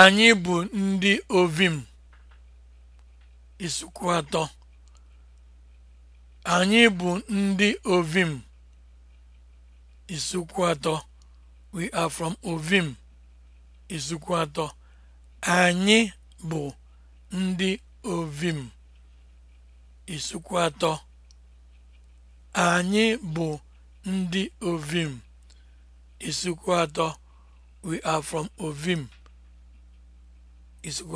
Anyị bụ ndị ovim isukwu atọ. Anyị bụ ndị ovim isukwu atọ. We are from ovim isukwu atọ. Anyị bụ ndị ovim isukwu atọ. Anyị bụ ndị ovim isukwu atọ. We are from ovim. is